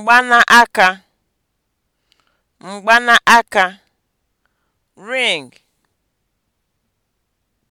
mgbanaka mgbanaka (ring)